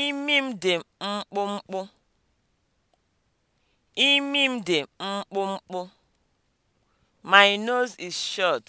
Imi m dị mkpụmkpụ. Imi m dị mkpụmkpụ. My nose is short.